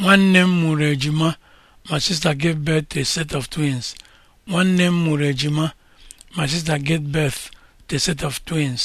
nwanne m mụrụ ejima my sister gave birth to a set of twins nwanne m mụrụ ejima my sister gave birth to a set of twins